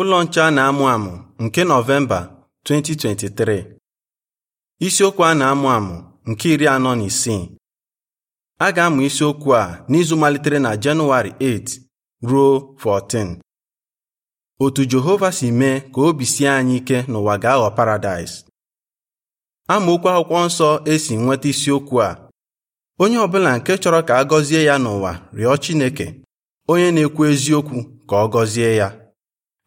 Ụlọ nche a na-amụ amụ nke Nọvemba 2023 isiokwu a na-amụ amụ nke iri anọ na isii a ga-amụ isiokwu a n'izu malitere na Jenụwarị 8 ruo 14 otu Jehova si mee ka obi sie anyị ike n'ụwa ga-aghọ paradaịs amaokwu akwụkwọ nsọ esi nweta isiokwu a onye ọbụla nke chọrọ ka a gọzie ya n'ụwa rịọ Chineke onye na-ekwu eziokwu ka ọ gọzie ya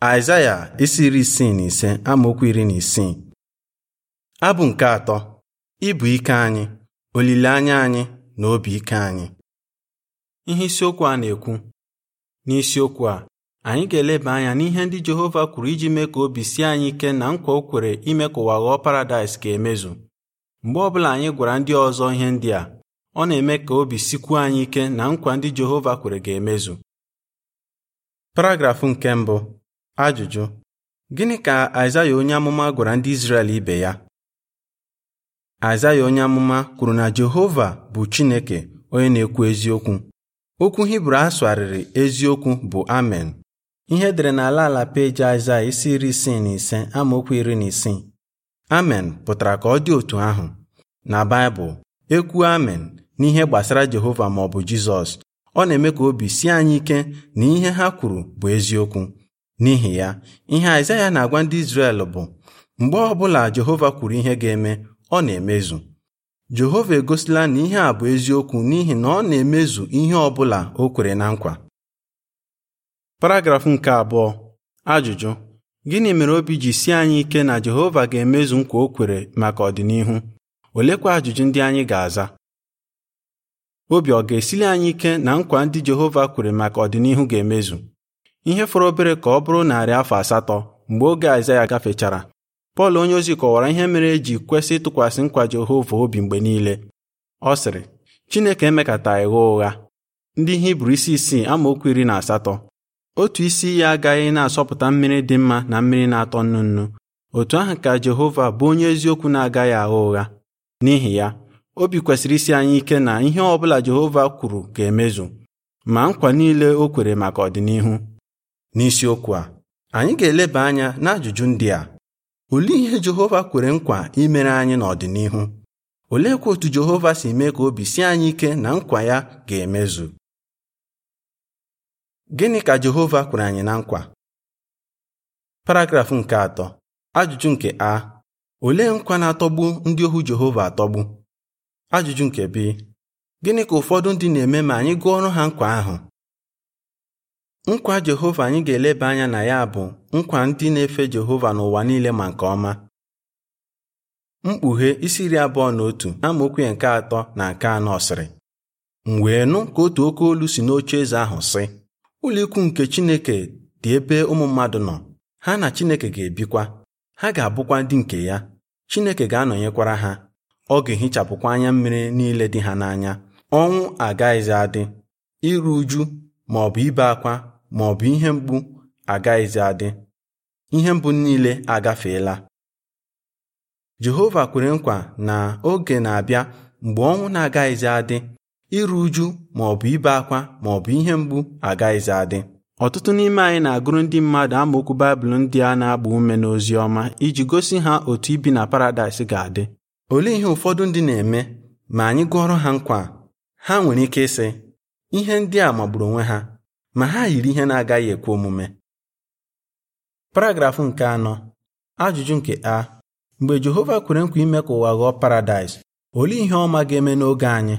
Aịzaya isi iri isii na ise amaokwu iri na isii abụ nke atọ ịbụ ike anyị olileanya anyị na obi ike anyị ihe isiokwu a na-ekwu n'isiokwu a anyị ga-eleba anya n'ihe ndị Jehova kwuru iji mee ka obi sie anyị ike na nkwa o kwere ime ka ụwa ghọọ paradaịs ga-emezu mgbe ọbụla anyị gwara ndị ọzọ ihe ndị a ọ na-eme ka obi sikwuo anyị ike na nkwa ndị Jehova kwere ga-emezu paragrafụ nke mbụ Ajụjụ: Gịnị ka Aịzaya onye amụma gwara ndị Izrel ibe ya? Aịzaya onye amụma kwuru na Jehova bụ Chineke onye na-ekwu eziokwu. Okwu Hibru asụgharịrị eziokwu bụ Amen. Ihe edere n'ala ala peji Aịzaya isi iri isii na ise amaokwu iri na isii. Amen pụtara ka ọ dị otu ahụ. Na Baịbụl, ekwu Amen n'ihe gbasara Jehova maọbụ bụ Jizọs. Ọ na-eme ka obi sie anyị ike na ihe ha kwuru bụ eziokwu. n'ihi ya ihe Aịzaya na-agwa ndị Izrel bụ mgbe ọ bụla Jehova kwuru ihe ga-eme ọ na-emezu Jehova egosila na ihe a bụ eziokwu n'ihi na ọ na-emezu ihe ọ bụla o kwere na nkwa paragrafụ nke abụọ ajụjụ gịnị mere obi ji si anyị ike na Jehova ga-emezu nkwa o kwere maka ọdịnihu olekwa ajụjụ ndị anyị ga-aza obi ọ ga-esili anyị ike na nkwa ndị Jehova kwere maka ọdịnihu ga-emezu ihe fọrọ obere ka ọ bụrụ narị afọ asatọ mgbe oge Aịzaya gafechara Pọl onyeozi kọwara ihe mere eji kwesị ịtụkwasị nkwa Jehova obi mgbe niile ọ sịrị Chineke emekata gha ụgha ndị Hibru isi isii amaokwu iri na asatọ otu isi ya agaghị na-asọpụta mmiri dị mma na mmiri na-atọ nnu nnu otu ahụ ka Jehova bụ onye eziokwu na-agaghị agha ụgha n'ihi ya obi kwesịrị isi anyị ike na ihe ọ bụla Jehova kwuru ga-emezu ma nkwa niile o kwere maka ọdịnihu n'isiokwu a anyị ga-eleba anya n'ajụjụ ndị a olee ihe Jehova kwere nkwa imere anyị n'ọdịnihu oleekwa otu Jehova si mee ka obi sie anyị ike na nkwa ya ga-emezu gịnị ka Jehova kwere anyị na nkwa paragrafụ nke atọ ajụjụ nke a olee nkwa na-atọgbu ndị ohu Jehova atọgbu ajụjụ nke b gịnị ka ụfọdụ ndị na-eme ma anyị gụọ ọrụ ha nkwa ahụ nkwa Jehova anyị ga-eleba anya na ya bụ nkwa ndị na-efe Jehova n'ụwa niile ma nke ọma mkpughe isi iri abụọ na otu amaokwu nke atọ na nke anọ sịrị m wee nụ ka otu oke olu si n'oche eze ahụ sị ụlọikwu nke Chineke dị ebe ụmụ mmadụ nọ ha na Chineke ga-ebikwa ha ga-abụkwa ndị nke ya Chineke ga-anọnyekwara ha ọ ga-ehichapụkwa anya mmiri niile dị ha n'anya ọnwụ agaghịzi adị iru uju ma ọ bụ ibe akwa ma ọ bụ ihe mgbu agaghịzi adị ihe mgbu niile agafeela Jehova kwere nkwa na oge na-abịa mgbe ọnwụ na-agaghịzi adị iru uju ma ọ bụ ibe akwa ma ọ bụ ihe mgbu agaghịzi adị ọtụtụ n'ime anyị na-agụrụ ndị mmadụ amaokwu Baịbụl ndị a na-agba ume n'ozi ọma iji gosi ha otu ibi na paradaịs ga-adị olee ihe ụfọdụ ndị na-eme ma anyị gụọrọ ha nkwa ha nwere ike ịsị ihe ndị a magburu onwe ha ma ha yiri ihe na-agaghị ekwe omume paragrafụ nke anọ ajụjụ nke a mgbe Jehova kwere nkwa ime ka ụwa ghọọ paradaịs olee ihe ọma ga-eme n'oge anyị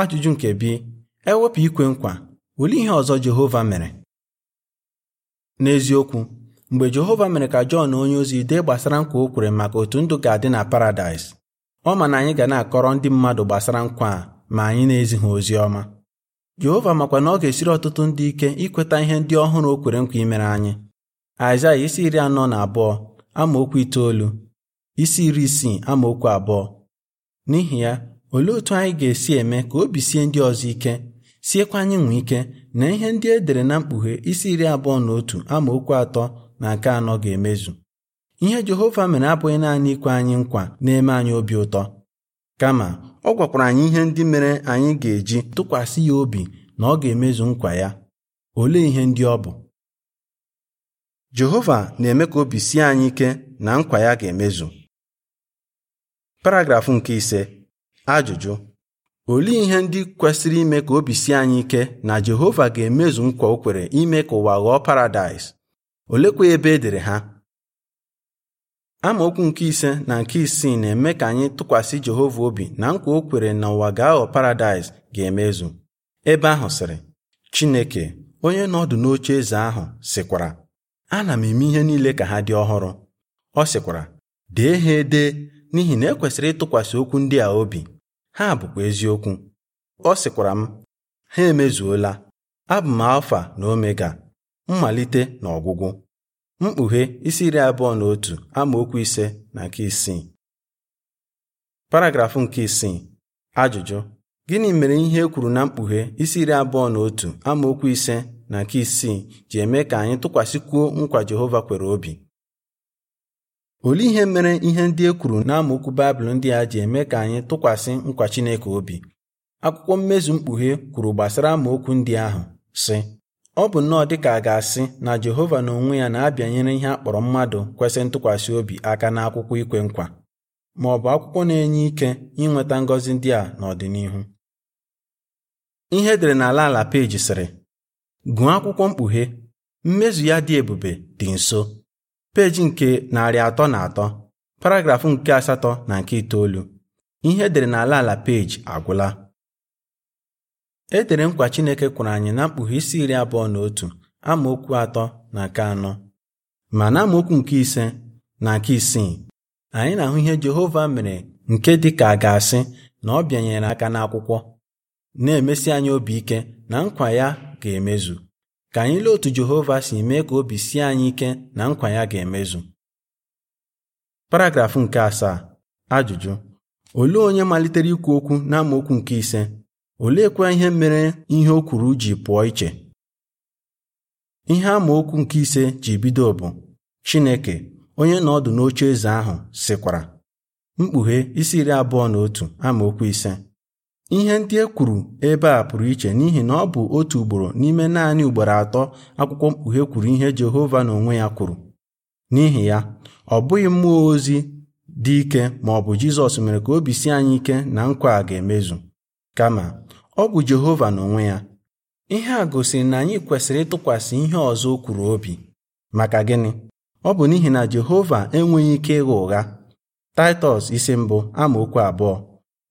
ajụjụ nke bi ewepụ ikwe nkwa olee ihe ọzọ Jehova mere n'eziokwu mgbe Jehova mere ka Jọn onye ozi dee gbasara nkwa o kwere maka otu ndụ ga-adị na paradaịs ọ ma na anyị ga na-akọrọ ndị mmadụ gbasara nkwa a ma anyị na ha ozi ọma Jehova makwa na ọ ga-esiri ọtụtụ ndị ike ikweta ihe ndị ọhụrụ o kwere nkwa imere anyị Aịzaya isi iri anọ na abụọ amaokwu itoolu isi iri isii amaokwu abụọ n'ihi ya olee otu anyị ga-esi eme ka obi sie ndị ọzọ ike siekwa anyị nwee ike na ihe ndị e dere na mkpughe isi iri abụọ na otu amaokwu atọ na nke anọ ga-emezu ihe Jehova mere abụghị naanị ikwe anyị nkwa na-eme anyị obi ụtọ kama ọ gwakwara anyị ihe ndị mere anyị ga-eji tụkwasị ya obi na ọ ga-emezu nkwa ya olee ihe ndị ọ bụ Jehova na-eme ka obi sie anyị ike na nkwa ya ga-emezu paragrafụ nke ise ajụjụ olee ihe ndị kwesịrị ime ka obi sie anyị ike na Jehova ga-emezu nkwa o kwere ime ka ụwa ghọọ paradaịs olekwa ebe edere ha amaokwu nke ise na nke isii na-eme ka anyị tụkwasị Jehova obi na nkwa o kwere na ụwa ga-aghọ paradaịs ga-emezu ebe ahụ sịrị Chineke onye nọdụ n'oche eze ahụ sịkwara ana m eme ihe niile ka ha dị ọhụrụ ọ sịkwara dee ha ede n'ihi na ekwesịrị ịtụkwasị okwu ndị a obi ha bụkwa eziokwu ọ sịkwara m ha emezuola abụ m alfa na omega mmalite na ọgwụgwụ mkpughe isi iri abụọ na otu amaokwu ise na nke isii paragrafụ nke isii ajụjụ gịnị mere ihe e kwuru na mkpughe isi iri abụọ na otu amaokwu ise na nke isii ji eme ka anyị tụkwasịkwuo nkwa Jehova kwere obi olee ihe mere ihe ndị e kwuru na amaokwu Baịbụl ndị a ji eme ka anyị tụkwasị nkwa Chineke obi akwụkwọ mmezu mkpughe kwuru gbasara amaokwu ndị ahụ sị ọ bụ nnọọ dị ka a ga-asị na Jehova n'onwe ya na-abịanyere ihe a kpọrọ mmadụ kwesị ntụkwasị obi aka n'akwụkwọ ikwe nkwa ma ọ bụ akwụkwọ na-enye ike inweta ngọzi ndị a n'ọdịnihu ihe edere n'ala ala peji sịrị gụọ akwụkwọ mkpughe mmezu ya dị ebube dị nso peji nke narị atọ na atọ paragrafụ nke asatọ na nke itoolu ihe edere n'ala ala peji agwụla e dere nkwa Chineke kwuru anyị na mkpughe isi iri abụọ na otu amaokwu atọ na nke anọ ma na amaokwu nke ise na nke isii anyị na-ahụ ihe Jehova mere nke dị ka ga-asị na ọ bịanyere aka n'akwụkwọ na-emesi anyị obi ike na nkwa ya ga-emezu ka anyị lee otu Jehova si mee ka obi sie anyị ike na nkwa ya ga-emezu paragrafụ nke asaa ajụjụ olee onye malitere ikwu okwu n'amaokwu nke ise oleekwa ihe mere ihe o kwuru ji pụọ iche ihe amaokwu nke ise ji bido bụ Chineke onye nọ ọdụ n'oche eze ahụ sịkwara mkpughe isi iri abụọ na otu amaokwu ise ihe ndị e kwuru ebe a pụrụ iche n'ihi na ọ bụ otu ugboro n'ime naanị ugboro atọ akwụkwọ mkpughe kwuru ihe Jehova n'onwe ya kwuru n'ihi ya ọ bụghị mmụọ ozi dị ike ma ọ bụ Jizọs mere ka obi si anyị ike na nkwa a ga-emezu kama ọ bụ Jehova n'onwe ya ihe a gosiri na anyị kwesịrị ịtụkwasị ihe ọzọ o kwuru obi maka gịnị ọ bụ n'ihi na Jehova enweghị ike ịgha ụgha Taịtọs isi mbụ amaokwu abụọ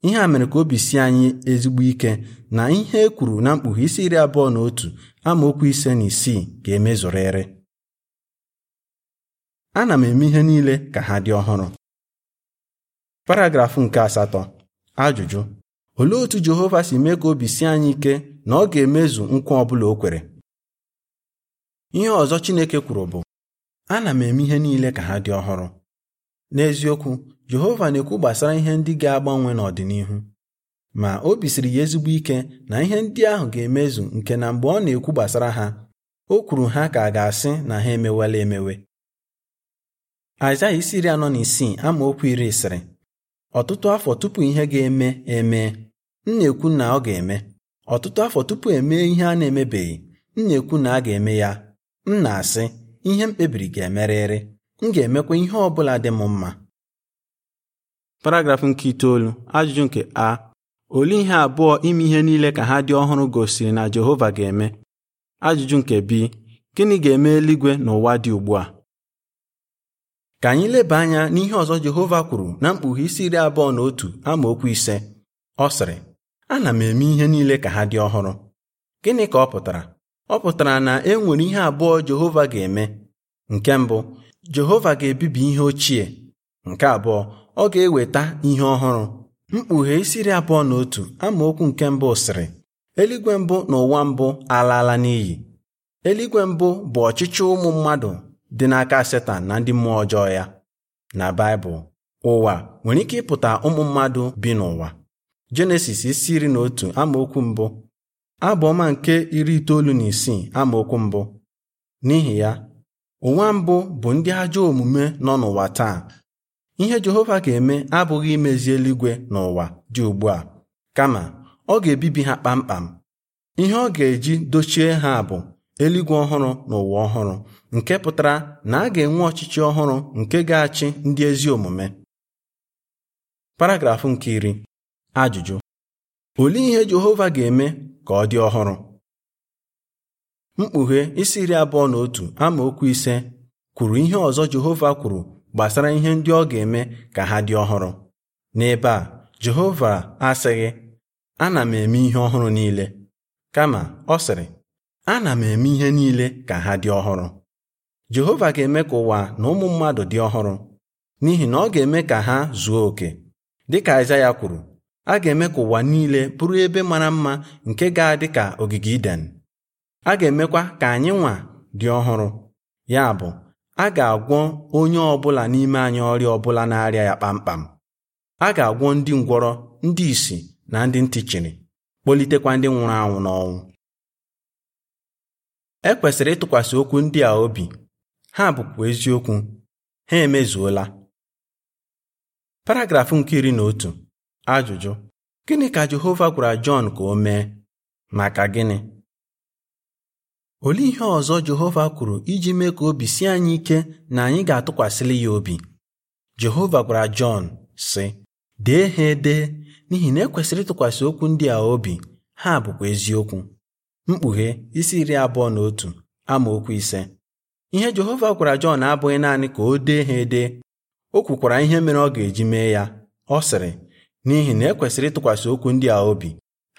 ihe a mere ka obi si anyị ezigbo ike na ihe e kwuru na mkpughe isi iri abụọ na otu amaokwu ise na isii ga emezụrịrị ana m eme ihe niile ka ha dị ọhụrụ paragrafụ nke asatọ ajụjụ olee otu Jehova si mee ka obi sie anyị ike na ọ ga-emezu nkwa ọ bụla o kwere ihe ọzọ Chineke kwuru bụ ana m eme ihe niile ka ha dị ọhụrụ n'eziokwu Jehova na-ekwu gbasara ihe ndị ga-agbanwe n'ọdịnihu ma obi siri ya ezigbo ike na ihe ndị ahụ ga-emezu nke na mgbe ọ na-ekwu gbasara ha o kwuru ha ka a ga-asị na ha emewela emewe Aịzaya isi iri anọ na isii amaokwu iri sịrị ọtụtụ afọ tupu ihe ga-eme eme m na-ekwu na ọ ga-eme ọtụtụ afọ tupu emee ihe a na-emebeghị m na-ekwu na a ga-eme ya m na-asị ihe m kpebiri ga-emerịrị m ga-emekwa ihe ọ bụla dị m mma paragrafụ nke itoolu ajụjụ nke a olee ihe abụọ ime ihe niile ka ha dị ọhụrụ gosiri na Jehova ga-eme ajụjụ nke bi gịnị ga-eme eluigwe n'ụwa dị ugbu a ka anyị leba anya n'ihe ọzọ Jehova kwuru na mkpughe isi iri abụọ na otu amaokwu ise ọ sịrị ana m eme ihe niile ka ha dị ọhụrụ gịnị ka ọ pụtara ọ pụtara na e nwere ihe abụọ Jehova ga-eme nke mbụ Jehova ga-ebibi ihe ochie nke abụọ ọ ga-eweta ihe ọhụrụ mkpughe isiri abụọ na otu amaokwu nke mbụ sịrị eluigwe mbụ na ụwa mbụ alaala n'iyi eluigwe mbụ bụ ọchịchị ụmụ mmadụ dị n'aka setan na ndị mmụọ ọjọọ ya na Baịbụl ụwa nwere ike ịpụta ụmụ mmadụ bi n'ụwa jenesis isi iri na otu amaokwu mbụ abụọma ọma nke iri itoolu na isii amaokwu mbụ n'ihi ya ụwa mbụ bụ ndị ajọ omume nọ n'ụwa taa ihe jehova ga-eme abụghị imezi eluigwe n'ụwa dị ugbu a kama ọ ga-ebibi ha kpamkpam ihe ọ ga-eji dochie ha bụ eluigwe ọhụrụ na ụwa ọhụrụ nke pụtara na a ga-enwe ọchịchị ọhụrụ nke ga-achị ndị ezi omume paragrafụ nke iri Ajụjụ olee ihe Jehova ga-eme ka ọ dị ọhụrụ? Mkpughe isi iri abụọ na otu amaokwu ise kwuru ihe ọzọ Jehova kwuru gbasara ihe ndị ọ ga-eme ka ha dị ọhụrụ. N'ebe a Jehova asịghị ana m eme ihe ọhụrụ niile kama ọ sịrị ana m eme ihe niile ka ha dị ọhụrụ Jehova ga-eme ka ụwa na ụmụ mmadụ dị ọhụrụ n'ihi na ọ ga-eme ka ha zuo oke dịka ya kwuru a ga-eme ka ụwa niile bụrụ ebe mara mma nke ga-adị ka ogige Iden a ga-emekwa ka anyị nwa dị ọhụrụ ya bụ a ga-agwọ onye ọbụla n'ime anyị ọrịa ọbụla na-arịa ya kpamkpam a ga-agwọ ndị ngwọrọ ndị ìsì na ndị ntị chiri kpọlitekwa ndị nwụrụ anwụ n'ọnwụ e kwesịrị ịtụkwasị okwu ndị a obi ha bụkwa eziokwu ha emezuola paragrafụ nke iri na otu Ajụjụ: Gịnị ka Jehova gwara Jọn ka o mee? Maka gịnị? Olee ihe ọzọ Jehova kwuru iji mee ka obi sie anyị ike na anyị ga atụkwasịlị ya obi? Jehova gwara Jọn, sị: Dee ha ede n'ihi na ekwesịrị ịtụkwasị okwu ndị a obi, ha bụkwa eziokwu. Mkpughe isi iri abụọ na otu amaokwu ise. Ihe Jehova gwara Jọn abụghị naanị ka o dee ha ede, o kwukwara ihe mere ọ ga-eji mee ya. Ọ sịrị n'ihi na ekwesịrị ịtụkwasị okwu ndị a obi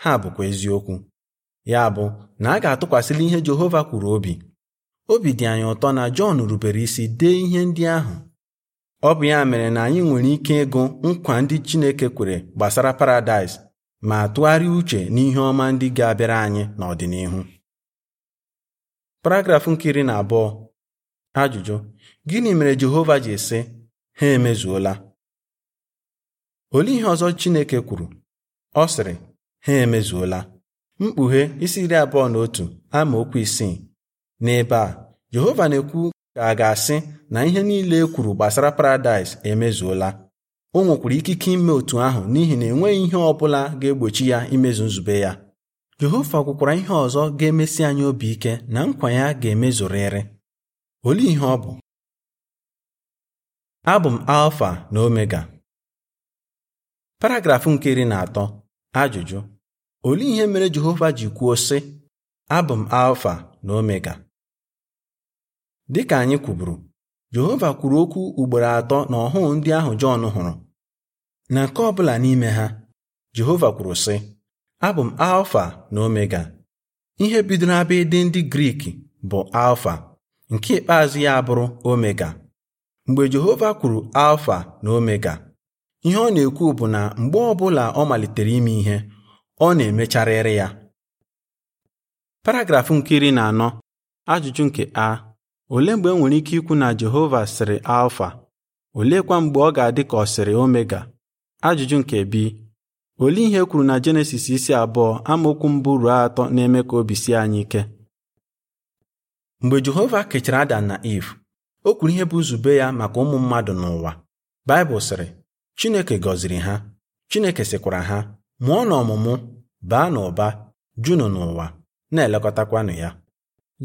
ha bụkwa eziokwu ya bụ na a ga-atụkwasịla ihe Jehova kwuru obi obi dị anyị ụtọ na Jọn rubere isi dee ihe ndị ahụ ọ bụ ya mere na anyị nwere ike ịgụ nkwa ndị Chineke kwere gbasara paradaịs ma tụgharịa uche n'ihe ọma ndị ga-abịara anyị n'ọdịnihu paragraf nke iri na abụọ ajụjụ gịnị mere Jehova ji sị ha emezuola olee ihe ọzọ Chineke kwuru ọ sịrị ha emezuola mkpughe isi iri abụọ na otu ama okwu isii n'ebe a Jehova na-ekwu ka a ga-asị na ihe niile e kwuru gbasara paradaịs emezuola o nwekwara ikike ime otu ahụ n'ihi na enweghị ihe ọ bụla ga-egbochi ya imezu nzube ya Jehova kwukwara ihe ọzọ ga-emesi anyị obi ike na nkwa ya ga-emezurịrị olee ihe ọ bụ abụ m alfa na omega paragrafụ nke iri na atọ ajụjụ olee ihe mere Jehova ji kwuo sị abụ m alfa na omega ka anyị kwuburu Jehova kwuru okwu ugboro atọ na ọhụụ ndị ahụ Jọn hụrụ na nke ọbụla n'ime ha Jehova kwuru sị abụ m alfa na omega ihe bidoro abịa ịdị ndị Grik bụ alfa nke ikpeazụ ya bụrụ omega mgbe Jehova kwuru alfa na omega ihe ọ na-ekwu bụ na mgbe ọ bụla ọ malitere ime ihe ọ na-emecharịrị ya paragrafụ nke iri na anọ ajụjụ nke a olee mgbe e nwere ike ikwu na Jehova sịrị alfa oleekwa mgbe ọ ga-adị ka ọ sịrị omega ajụjụ nke bi olee ihe e kwuru na jenesis isi abụọ amaokwu mbụ ruo atọ na-eme ka obi sie anyị ike mgbe jehova kechara ada na iv o kwuru ihe bụ nzube ya maka ụmụ mmadụ n'ụwa baịbụl sịrị Chineke gọziri ha Chineke sịkwara ha mụọ na ọmụmụ baa n'ụba junu n'ụwa na-elekọtakwanụ ya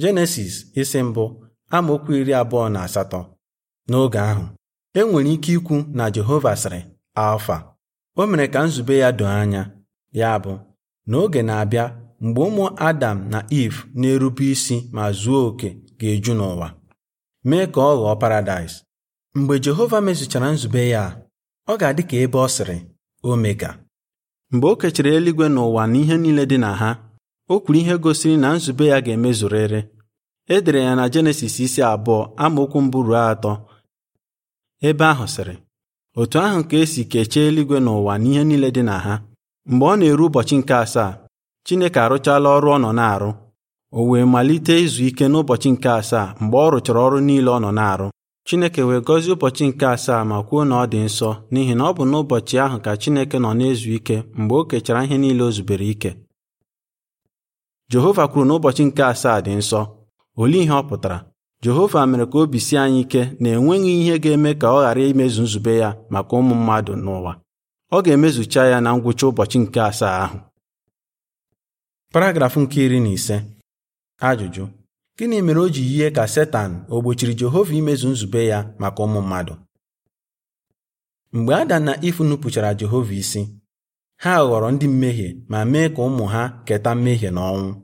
Jenesis isi mbụ amaokwu iri abụọ na asatọ n'oge ahụ e nwere ike ikwu na Jehova sịrị alfa o mere ka nzube ya doo anya ya bụ n'oge na-abịa mgbe ụmụ Adam na Eve na-erube isi ma zuo oke ga-eju n'ụwa mee ka ọ ghọọ paradaịs mgbe Jehova mezuchara nzube ya ọ ga-adị ka ebe ọ sịrị omega mgbe o kechara eluigwe n'ụwa na ihe niile dị na ha o kwuru ihe gosiri na nzube ya ga-emezurịrị e dere ya na jenesis isi abụọ amaokwu mbụ ruo atọ ebe ahụ sịrị otu ahụ ka esi kechie eluigwe n'ụwa na ihe niile dị na ha mgbe ọ na-eru ụbọchị nke asaa Chineke arụchala ọrụ ọ nọ na-arụ o wee malite izu ike n'ụbọchị nke asaa mgbe ọ rụchara ọrụ niile ọ nọ na-arụ Chineke wee gọzie ụbọchị nke asaa ma kwuo na ọ dị nsọ n'ihi na ọ bụ n'ụbọchị ahụ ka Chineke nọ na-ezu ike mgbe o kechara ihe niile o zubere ike. Jehova kwuru na ụbọchị nke asaa dị nsọ, olee ihe ọ pụtara? Jehova mere ka obi sie anyị ike na enweghị ihe ga-eme ka ọ ghara imezu nzube ya maka ụmụ mmadụ n'ụwa. Ọ ga-emezucha ya na ngwụcha ụbọchị nke asaa ahụ. Paragraf nke iri na ise. Ajụjụ gịnị mere o ji yie ka Setan o gbochiri Jehova imezu nzube ya maka ụmụ mmadụ mgbe Ada na Ifu nupụchara Jehova isi ha ghọrọ ndị mmehie ma mee ka ụmụ ha keta mmehie na ọnwụ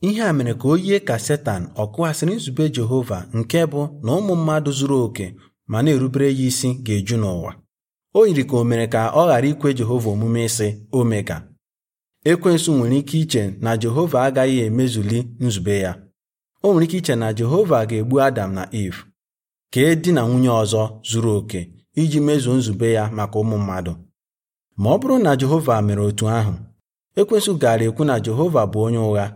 ihe a mere ka o yie ka Setan ọ kụghasịrị nzube Jehova nke bụ na ụmụ mmadụ zuru oke ma na-erubere ya isi ga-eju n'ụwa o yiri ka o mere ka ọ ghara ikwe Jehova omume ịsị omega ekwensu nwere ike iche na Jehova agaghị emezuli nzube ya o nwere ike iche na Jehova ga-egbu Adam na Eve e di na nwunye ọzọ zuru oke iji mezuo nzube ya maka ụmụ mmadụ ma ọ bụrụ na Jehova mere otu ahụ ekwesụ gaara ekwu na Jehova bụ onye ụgha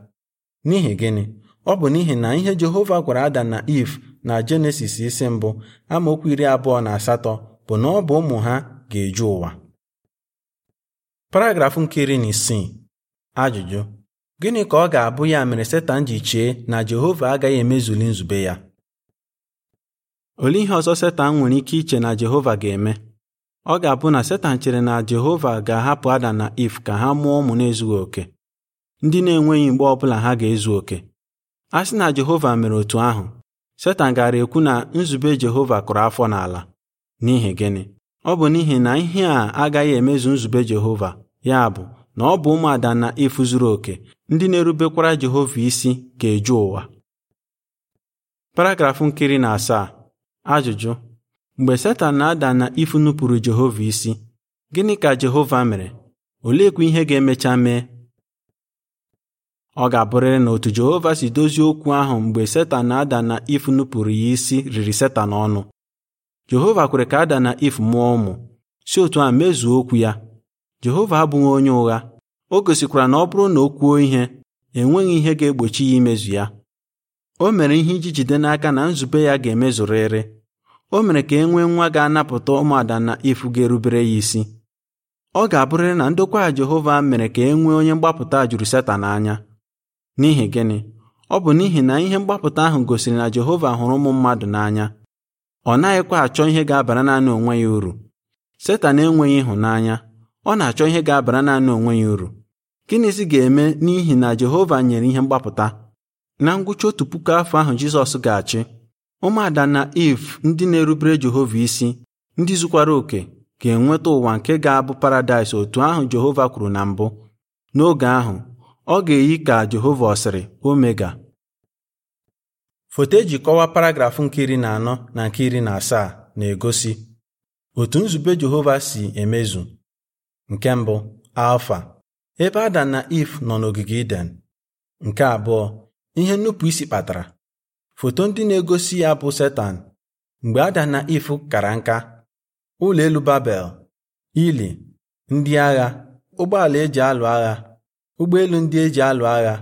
n'ihi gịnị ọ bụ n'ihi na ihe Jehova gwara Adam na Eve na Jenesis isi mbụ amaokwu iri abụọ na asatọ bụ na ọ bụ ụmụ ha ga-eju ụwa paragrafụ nke iri na isii ajụjụ Gịnị ka ọ ga-abụ ya mere Setan ji chee na Jehova agaghị emezuli nzube ya? Olee ihe ọzọ Setan nwere ike iche na Jehova ga-eme? Ọ ga-abụ na Setan chere na Jehova ga-ahapụ Adam na If ka ha mụọ ụmụ na-ezughị oke, ndị na-enweghị mgbe ọ bụla ha ga-ezu oke. A sị na Jehova mere otu ahụ, Setan gara ekwu na nzube Jehova kụrụ afọ n'ala. N'ihi gịnị? Ọ bụ n'ihi na ihe a agaghị emezu nzube Jehova, ya bụ na ọ bụ ụmụ Adam na Iv zuru oke ndị na-erubekwara Jehova isi ga-eju ụwa paragrafụ nkiri na asaa ajụjụ mgbe Setan na-ada na ifu nupụrụ Jehova isi gịnị ka Jehova mere oleekwa ihe ga-emecha mee ọ ga-abụrịrị na otu Jehova si dozie okwu ahụ mgbe Setan na-ada na ifu nupụrụ ya isi riri Setan ọnụ Jehova kwere ka Ada na If mụọ ụmụ si otu a mezuo okwu ya Jehova abụghị onye ụgha o gosikwara na ọ bụrụ na o kwuo ihe enweghị ihe ga-egbochi ya imezu ya o mere ihe iji jide n'aka na nzube ya ga-emezurịrị o mere ka e nwee nwa ga-anapụta ụmụada na ifu ga-erubere ya isi ọ ga-abụrịrị na ndokwa Jehova mere ka e nwee onye mgbapụta juru Setan anya n'ihi gịnị ọ bụ n'ihi na ihe mgbapụta ahụ gosiri na Jehova hụrụ ụmụ mmadụ n'anya ọ naghịkwa achọ ihe ga-abara naanị onwe ya uru Setan enweghị ịhụnanya ọ na-achọ ihe ga-abara naanị onwe ya uru gịnịzi ga-eme n'ihi na Jehova nyere ihe mgbapụta na ngwụcha otu puku afọ ahụ Jizọs ga-achị ụmụada na Iv ndị na-erubere Jehova isi ndị zukwara oke ga-enweta ụwa nke ga-abụ paradaịs otu ahụ Jehova kwuru na mbụ n'oge ahụ ọ ga-eyi ka Jehova ọsịrị omega foto eji kọwaa paragrafụ nke iri na anọ na nke iri na asaa na-egosi otu nzube Jehova si emezu nke mbụ alfa ebe adam na if nọ n'ogige iden nke abụọ ihe nnupụ isi kpatara foto ndị na-egosi ya bụ setan mgbe adam na if kara nka ụlọ elu babel ili ndị agha ụgbọala eji alụ agha ụgbọelu ndị eji alụ agha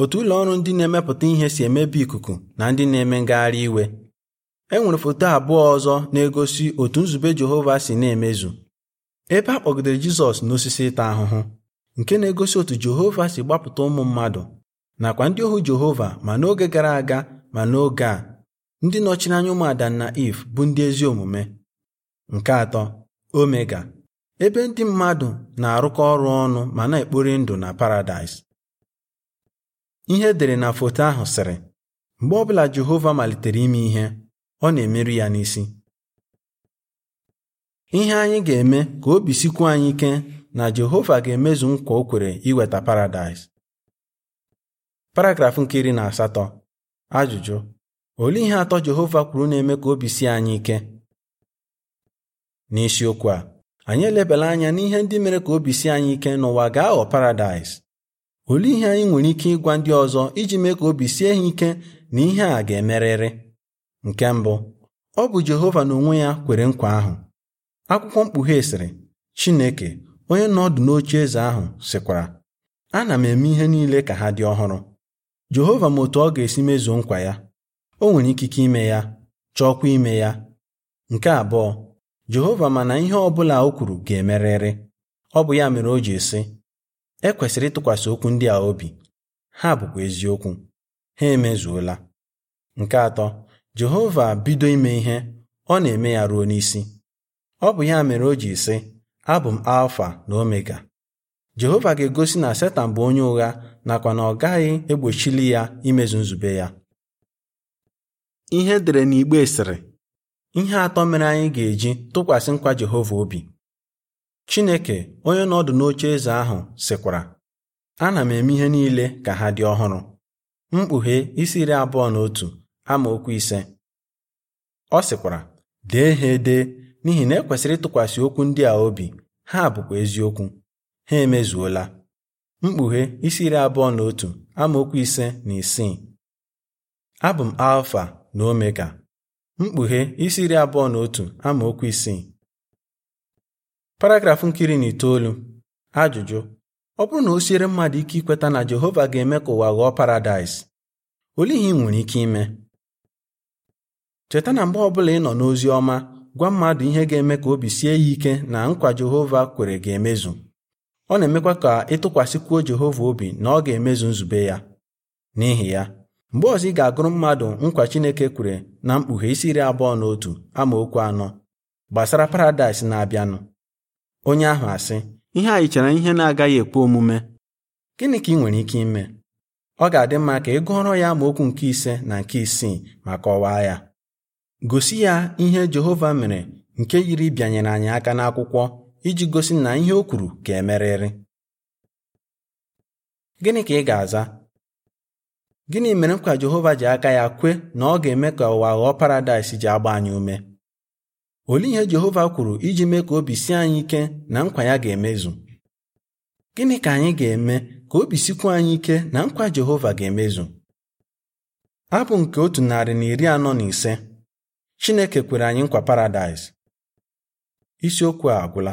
otu ụlọ ọrụ ndị na-emepụta ihe si emebi ikuku na ndị na-eme ngagharị iwe e foto abụọ ọzọ na-egosi otu nzube Jehova si na-emezu ebe a kpọgidere Jizọs n'osisi ịta ahụhụ nke na-egosi otu Jehova si gbapụta ụmụ mmadụ nakwa ndị ohu Jehova ma n'oge gara aga ma n'oge a ndị nọchiri anya ụmụ Adam na Iv bụ ndị ezi omume nke atọ Omega ebe ndị mmadụ na-arụkọ ọrụ ọnụ ma na-ekpori ndụ na Paradaịs ihe edere na foto ahụ sịrị mgbe ọbụla Jehova malitere ime ihe ọ na-emerụ ya n'isi ihe anyị ga-eme ka obi sikwuo anyị ike na Jehova ga-emezu nkwa o kwere iweta paradaịs paragrafụ nke iri na asatọ ajụjụ olee ihe atọ Jehova kwuru na-eme ka obi si anyị ike n'isiokwu a anyị elebela anya n'ihe ndị mere ka obi sie anyị ike n'ụwa ga-aghọ paradaịs olee ihe anyị nwere ike ịgwa ndị ọzọ iji mee ka obi sie ha ike na ihe a ga-emerịrị nke mbụ ọ bụ Jehova n'onwe ya kwere nkwa ahụ akwụkwọ mkpughe sịrị Chineke onye nọ n'oche eze ahụ sịkwara ana m eme ihe niile ka ha dị ọhụrụ Jehova ma otu ọ ga-esi mezuo nkwa ya o nwere ikike ime ya chọọkwa ime ya nke abụọ Jehova ma na ihe ọ bụla o kwuru ga-emerịrị ọ bụ ya mere o ji sị e kwesịrị ịtụkwasị okwu ndị a obi ha bụkwa eziokwu ha emezuola nke atọ Jehova bido ime ihe ọ na-eme ya ruo n'isi ọ bụ ya mere o ji sị abụ m alfa na omega jehova ga-egosi na setan bụ onye ụgha nakwa na ọ gaghị egbochili ya imezu nzube ya ihe dere n'igbe sịrị ihe atọ mere anyị ga-eji tụkwasị nkwa jehova obi chineke onye nọdụ n'oche eze ahụ sịkwara ana m eme ihe niile ka ha dị ọhụrụ mkpughe isi iri abụọ na otu amaokwu ise ọ sịkwara dee ha ede n'ihi na ekwesịrị ịtụkwasị okwu ndị a obi ha abụkwa eziokwu ha emezuola mkpughe isi iri abụọ na otu amaokwu ise na isii abụ m alfa na omega mkpughe isi iri abụọ na otu amaokwu isii paragrafụ nkiri na itoolu ajụjụ ọ bụrụ na o siere mmadụ ike ikweta na Jehova ga-eme ka ụwa ghọọ paradaịs olee ị nwere ike ime cheta na mgbe ọbụla ị nọ n'ozi ọma gwa mmadụ ihe ga-eme ka obi sie ya ike na nkwa Jehova kwere ga-emezu ọ na-emekwa ka ịtụkwasịkwuo Jehova obi na ọ ga-emezu nzube ya n'ihi ya mgbe ọzọ ị ga-agụrụ mmadụ nkwa Chineke kwere na mkpughe isi iri abụọ na otu amaokwu anọ gbasara paradaịs na-abịanụ onye ahụ asị ihe anyị chere ihe na-agaghị ekwe omume gịnị ka ị nwere ike ime ọ ga-adị mma ka ị gụọrọ ya amaokwu nke ise na nke isii ma kọwaa ya gosi ya ihe Jehova mere nke yiri bịanyere anyị aka n'akwụkwọ iji gosi na ihe o kwuru ka emerịrị gịnị ka ị ga-aza gịnị mere nkwa Jehova ji aka ya kwe na ọ ga-eme ka ụwa ghọọ paradaịs ji agba anyị ume olee ihe Jehova kwuru iji mee ka obi sie anyị ike na nkwa ya ga-emezu gịnị ka anyị ga-eme ka obi sikwu anyị ike na nkwa Jehova ga-emezu abụ nke otu narị na iri anọ na ise Chineke kwere anyị nkwa paradaịs isiokwu a agwụla